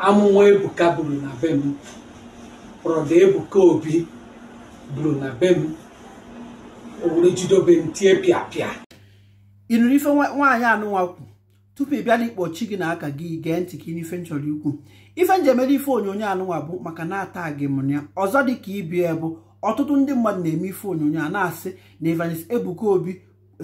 amụma ebuka buru na be m brọda ebuka obi buru na be m owere jidobe m tie pịapịa ịnụrụ ife nwaanyị anụnwa tupu ị bịa na gị na aka gị gee ntị ka n'ife nchọrọ ikwu ife njem ede ife onyonyo anụnwa bụ maka na-ata gị m ọzọ dị ka ibia bụ ọtụtụ ndị mmadụ na-eme ife onyonyo a na-asị na evangelist ebuka obi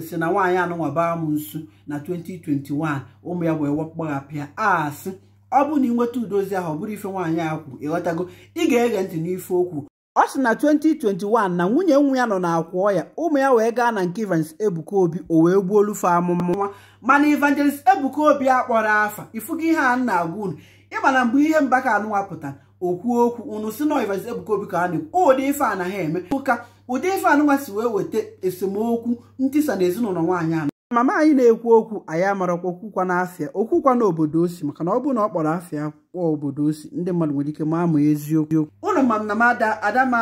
si na nwaanyị anụnwa baa m nsu na 2021 ụmụ ya wee gbagha pịa asị ọ bụ na ị nweta udozi ahụ ọ bụrụ ife nwaanyị a kwu ịghọtago ị ga-ege ntị n'ife okwu ọ sị na 2021 na nwunye nwa ya nọ na-akwụ ọ ya ụmụ ya wee gaa na nke Evangelist Ebuka Obi o wee gbuo olufe amụmụnwa mana ivangelist Ebuka Obi a kpọrọ afa ifugo ihe a na-agwa unu ịma na mgbe ihe mba ka anụwapụta okwu okwu unu si na Evangelist Ebuka Obi ka na ụdị ife a na ha eme ụka ụdị ife anụnwa si wee weta esemokwu ntisa na ezinụlọ nwaanyị anụ mama anyị na-ekwu okwu anyị amarakwa okwukwa n'afịa okwukwa na obodo osi maka na ọ bụrụ na ọ kpọrọ afịa kpọọ obodo osi ndị mmadụ nwere ike ma eziokwu ụlọ ma na m ada adama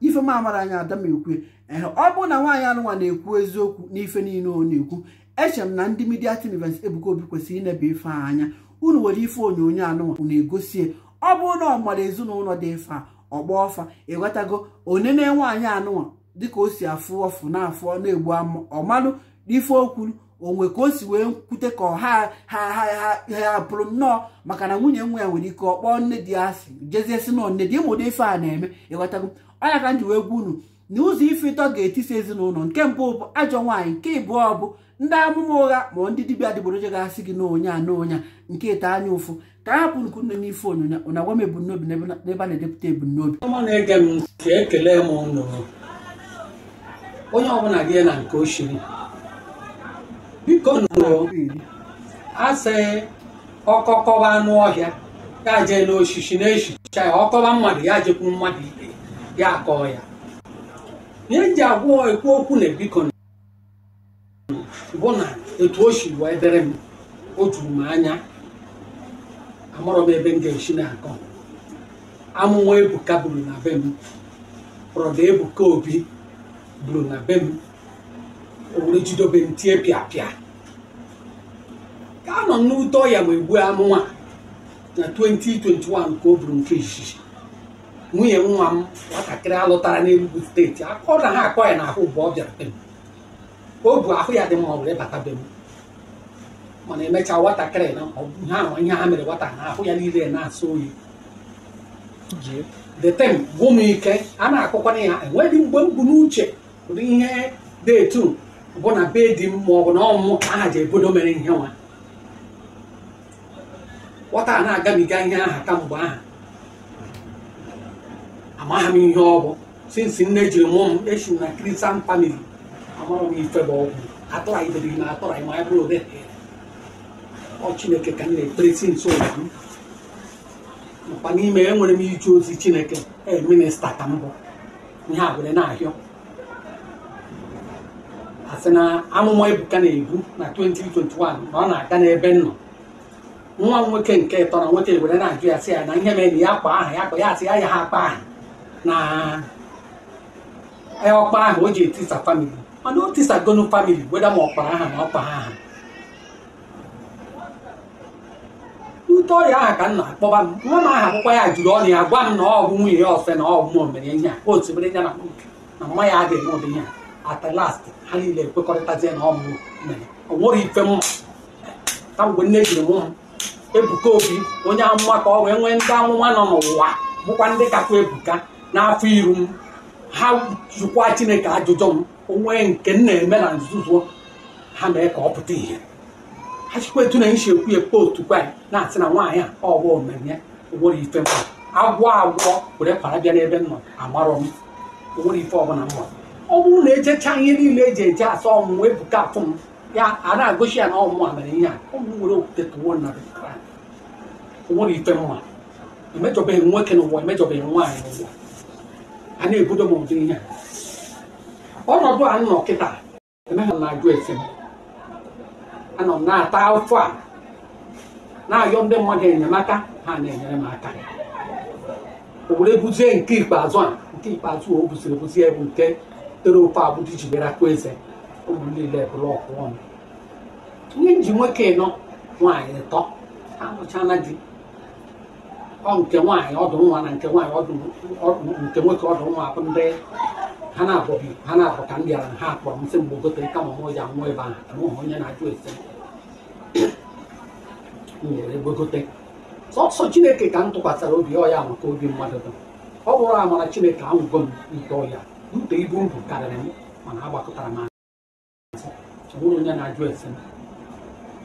ife m amara anya ada m ọ bụrụ na nwaanyị anụnwa na-ekwu eziokwu n'ife niile ọ na-ekwu eche m na ndị midia tinivens Ebuka Obi kwesịrị inebe ife anya unu nwere ife onyonyo anụnwa na egosie ọ bụrụ na ọ mara ezinụlọ dị fa ọgba ọfa ịghọtago onene nwaanyị anụnwa dịka o si afụ ọfụ na afụ na-egbu ọmalụ ife okwu onwe ka o si wee kwute ka ọha ha ha ha pụrụ nnọọ maka na nwunye nwa ya nwere ike ọ kpọọ nne di asị jezie si nne di ịmụdo ife a na-eme ịghọtago ọnya ka m ji wee gwa unu na ụzọ ife ịtọ ga-etisi ezinụlọ nke mbụ bụ ajọ nwaanyị nke ịbụọ bụ ndị amụma ụgha ma ndị dibịa adịgboroja ga-asị gị n'onye a n'onya nke ite anya ụfụ ka ha hapụ nku nne n'ife onyonyo ụna gwa m ebumnobi n'ebe a na-edepụta ebumnobi onye ọbụla gị na nke ochiri biko asị ọkọkọba anụ ọhịa ya jee n'osisi na-esicha ya ọkọba mmadụ ya jekwu mmadụ ibe ya kọọ ya ihe eji agwọ ekwu okwu na biko bụ na etu o si wee dịrị m o juru m anya amụrụ m ebe m ga-esi na-akọ amụwa ebuka buru na be m brọda ebuka obi buru na be m owere jidobe m tie pịa nọ n'ụtọ ya wee gbuo amụma na 2021 ka o buru nke izizi nwunye nwa m nwatakịrị alụtara n'Enugu steeti akọ na ha akọ ya na mgbe ọ bịara be m o bu ahụ ya dị ma ọ bụrụ ịbata be m mana emechaa nwatakịrị na ha ihe ha mere nwata na ahụ ya niile na asa oyi detem gwụ m ike a na-akọkwana ya enweghị mgbe m bụ n'uche ụdị ihe detu bụ na be di m ma ọ bụ na ọmụmụ aha ji ebodo mere ihe nwa nwata na-agabiga ihe aha kamgbe aha amaghị m ihe ọ bụ sinsi nne jiri mụọ m esi na kristian famili amara m ife bụ ọgwụ atụraidere na atụraị ma bụrụ ode ọ chineke ka m na-ekpere sinsi ụwa m mkpa n'ime enwere m ije ozi chineke ee minista ka mbụ. bụ ihe a were na-ahịọ asị na amụma ebuka na-ebu na 2021 na ọ na-aga n'ebe m nọ nwa m nwoke nke tọrọ nwoke were na-ajụ ya sị ya na ihe mere na ya kpa aha ya kpa ya asị ya ya ha akpa aha na ọkpa aha o ji etisa famili mana o tisagonu famili weda ma ọkpara aha na ọkpa aha ute ọrịa aha ka m na-akpọba m nwa m aha akwụkwọ ya jụrụ ọnụ ya gwa m na ọ bụ nwunye ya ọfe na ọ bụ m omere ihe a otu mere ya na na mma ya adịghị obi ihe a at ha niile ekwekọrịtazie na ọ bụ mere ọ nwere ife mma ka mgbe nne jiri mụ ebuka obi onye amụma ka ọ wee nwee ndị amụma nọ n'ụwa bụkwa ndị kakwa ebuka n'afọ iru m ha jụkwa chineke ajụjụ m onwe nke m na-eme na nzuzo ha mee ka ọ pụta ihe ha chikwa etu na isi ekwu ya otu kwa na-asị na nwaanyị a ọ bụ omeme onwere ife m agwọ agwọ were kwara bịa n'ebe m nọ amarọ m onwere ife ọbụla m ọ bụrụ na ejecha ihe niile eji eje asa ọmụmụ ebuka afụ m ya a na-agụchi ya na ọmụmụ a ihe a ọ nwere okwute tụwo nna ụwa ifere nwa emejọbeghị nwoke n'ụwa emejọbeghị nwaanyị n'ụwa a na-ebudo m ụdị ihe ọnọdụ a nọ kịta emeghị m na-ajụ esi m anọ m na-ata afọ a na-ayọ ndị mmadụ enyemaka ha na-enyere m aka o were buzie nke ikpeazụ a nke ikpeazụ o buziri ebuzi bụ nke tere ofe abụdị ji bịara eze ụmụ niile bụrụ ọkụ ọnụ ihe nji nwoke nọ nwaanyị tọ amụchala di ông tiếng ngoài ông tiếng ngoài nàng tiếng ngoài ông ông tiếng ngoài có tiếng ngoài bên đây hắn nào cũng hắn nào cũng cản địa là hạt của ông sinh bố cứ tới cầm ông ngồi giảng ngồi bàn ông ngồi nhà này tuổi sinh ngồi đây bố cứ tới sọ sọ chineke ka ntụkwasị obi ọ ya maka obi mmadụ dum ọ bụrụ amara chineke ahụgo m nke ọya ute ibu m bụ karịrị m mana agbakọtara m azụ onwere onye na-ajụ ese m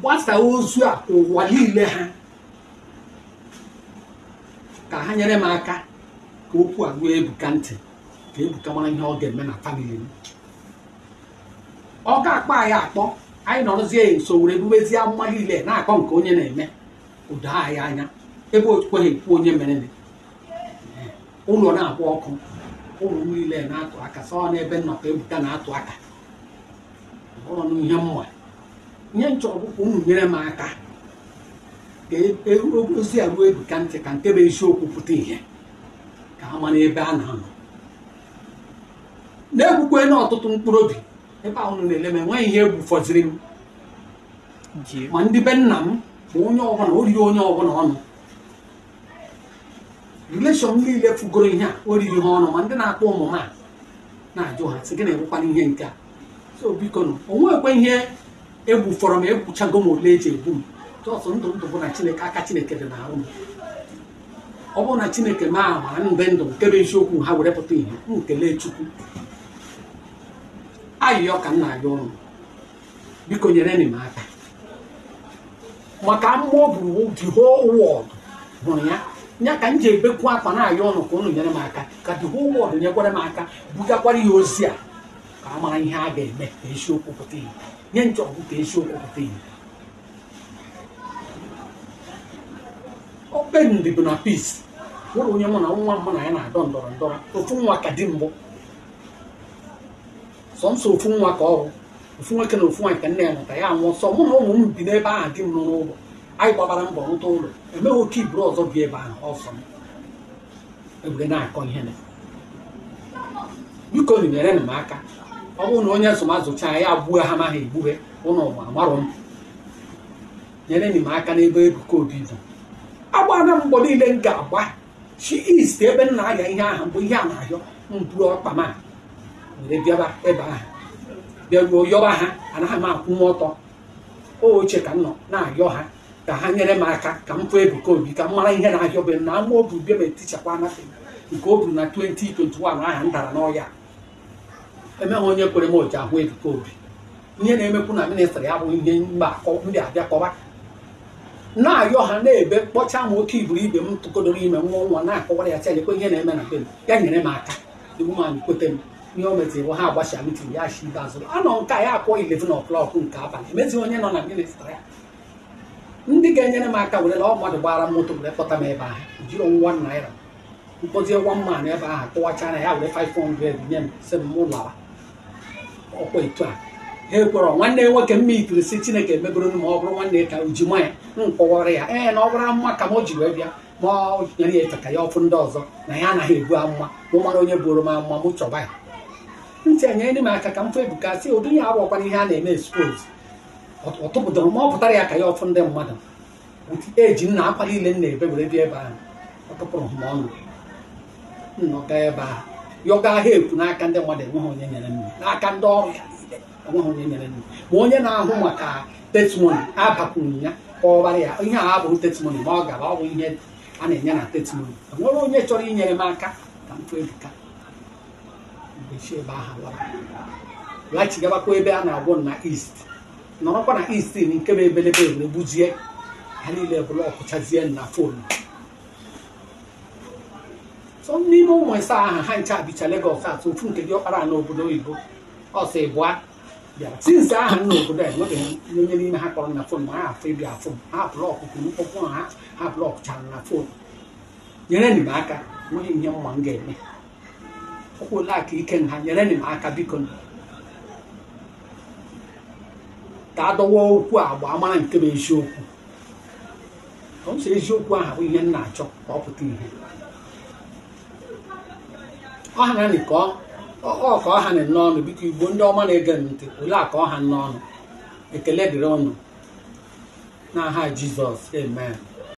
gbasaa ozu a ụwa niile ha ka ha nyere m aka ka okwu a ruo ebuka ntị ka ebuka mara ihe ọ ga-eme na famili m ọ ga-akpọ anyị akpọ anyị nọrọzie ya nso were ebubezie amụma niile na-akpọ nke onye na-eme ụda anyị anya ebe okweghị ekwu onye mere ụlọ na-akpọ ọkụ ụlọ niile na-atụ aka sọ n'ebe nnọkọ ebuka na-atụ aka ụlọ ihe mma ihe nchọrọ ka unu nyere m aka ka e, e, ozi a ruo ebuka ntị ka nke bụ eziokwu pụta ihe ka ha mara ebe a na-anọ na-egbukwe na ọtụtụ mkpụrụ obi ebe ahụ na-ele m enweghị ihe egwu fọziri m ma ndị be nna m bụ onye ọbụla oriri onye ọbụla ọnụ releshọn niile fugoro ihe a oriri ha ọnụ ma ndị na-akpọ ụmụ ha na-ajụ ha sị gị na-ebụkwana ihe nke a so biko o nwekwa ihe egbufọrọ m egbuchago m ole eji egbu m jọsọ ndụ ndụ bụ na chineke aka chineke dị na arụ m ọ bụrụ na chineke ma ama ndụ nke bụ eziokwu ha were pụta ihe m chukwu ayịyọ ka m na-ayọ ọnụ biko nyere m aka maka mmụọ bụ the whole hụrụ ya ya ka m ji ebekwu akwa na-ayọ ọnụ ka ụnụ nyere m aka ka the whole world nyekwara m aka bugakwara ya ozi a ka a mara ihe a ga-eme ka esiokwu pụta ihe nye nchọgụ ka esiokwu pụta ihe okpendị bụ na peace nwere onye mụ na nwa mụ na ya na-adọ ndọrọ ndọrọ ofu nwa ka di mbụ sọnsọ ofu nwa ka ọrụ ofu nwoke na ofu nwa ka nne ya nọta ya nwụọ sọ mụ na ụmụ m bi n'ebe ahụ di m nọ n'ụlọ anyị gbabara mbọ rụta ụlọ emeghị oke iburu ọzọ bi ebe ahụ ọsọ m egwure na-akọ ihe na biko nyere m aka ọ bụrụ na onye azụmazụcha ya abụọ ha amaghị egbughe ụlọ ụwa amarọ m nyere m aka n'ebe Ebuka Obi bụ agbara mgbọ niile m ga-agba chi ist ebe m na-ahịa ihe ahụ mgbe ihe a na-ahịọ mburu ọkpa m were bịaba ebe ahụ bịaruo yọba ha anaghị m akwụ m ọtọ oche ka m nọ na-ayọ ha ka ha nyere m aka ka m fụ Ebuka Obi ka m mara ihe na-ahịọbe m na ama obi bịa ma etichakwa anafe nke o buru na 2021 ahụ m dara n'ọya emeghị onye kwere m oji ahụ ebuka obi ihe na-emekwu na ministrị ya bụ ihe mba ndị abịa kọba na-ayọ ha na-ebe kpọcha m oke iburu ibe m tụkodoro ime nwa nwa na-akọwara ya chanyekwe ihe na-eme na be m ya nyere m aka iwu m anyị kweta m ihe o metiri ha agbacha mitin ya shi ibe azụ anọ nke a ya akpọ ilevin ọklọk nke abalị emezi onye nọ na ministrị ya ndị ga-enyere m aka were ọ mmadụ gbara m ụtụ were kpọta m ebe ahụ jiri nwa naira mkpọzie nwa mma na ebe ahụ kụwachara ya were 500 nye m si m mụ lawa ọkwa etu a ha ekwere nwanne nwoke mma itiri si chineke emebere ma ọ bụrụ nwanne ka uji ji ya nkọwara ya ee na ọ bụrụ amụma ka m ji wee bịa ma ọ nyere ya ka ya ọfụ ndị ọzọ na ya anaghị ebu amụma mụ mara onye bụrụ m amụma m chọba ya ntị enyere m aka ka m fụ ebuka si ụdị ya abụọkwara ihe a na-eme expose ọ tụpụtara ma ọ pụtara ya ka ya ọfụ ndị mmadụ eji nna akwa niile na ebe were bịa ebe ahụ ọ ma ọnụ ọ ebe ahụ yọga help n'aka ndị mmadụ enweghị onye nyere nri n'aka ndị ọrụ ya niile enweghị onye nyere nri ma onye na-ahụ maka testimony abakwuru ya ka ọ bara ya ihe a abụrụ testimony ma ọ gaba ọ bụ ihe a na-enye na testimony enwere onye chọrọ inyere m aka ka m kpebiga ebe ahụ laghachigabakwa ebe a na-agwọ na east nọrọkwa na east nke bụ ebelebe were ha niile bụrụ ọkụchazie na fonu n'ime ụmụ ịsa aha ha ncha dịcha Legọs atụ ofu nke ọkpara n'obodo oyibo ọsọ ịbụa bịara sinsi aha nna obodo a enweghị onye n'ime ha kpọrọ na fon ha afọ ịbịa fon ha blọkụ mkpọkpụ ha ha blọkụchara na fon nyere m aka nweghị ihe mma m ga-eme ole aka ike nha nyere m aka biko ka dọwa okwu agba mara nke bụ eziokwu ọ eziokwu ahụ bụ ihe m na-achọ ka ọ pụta ihe ọha na nị ka ọha nị n'ọnụ biko igbo ndị ọma na-ege m ntị ole ka ọha n'ọnụ ekele dịrị ọnụ n'aha Jizọs amen